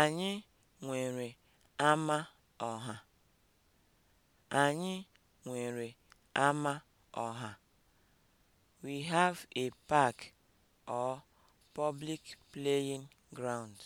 Anyị nwere ama ọha. Anyị nwere ama ọha. We have a park or public playing ground.